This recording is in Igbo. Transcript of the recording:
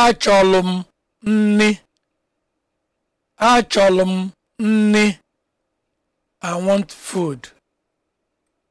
Achọlụ m nni. Achọlụ m nni. I want food.